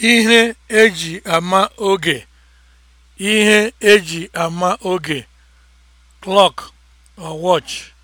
ihe eji ama oge ihe eji ama oge clock or watch